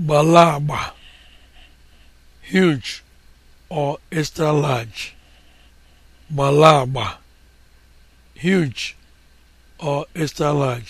gbala agba huge or extra large gbala agba huge or extra large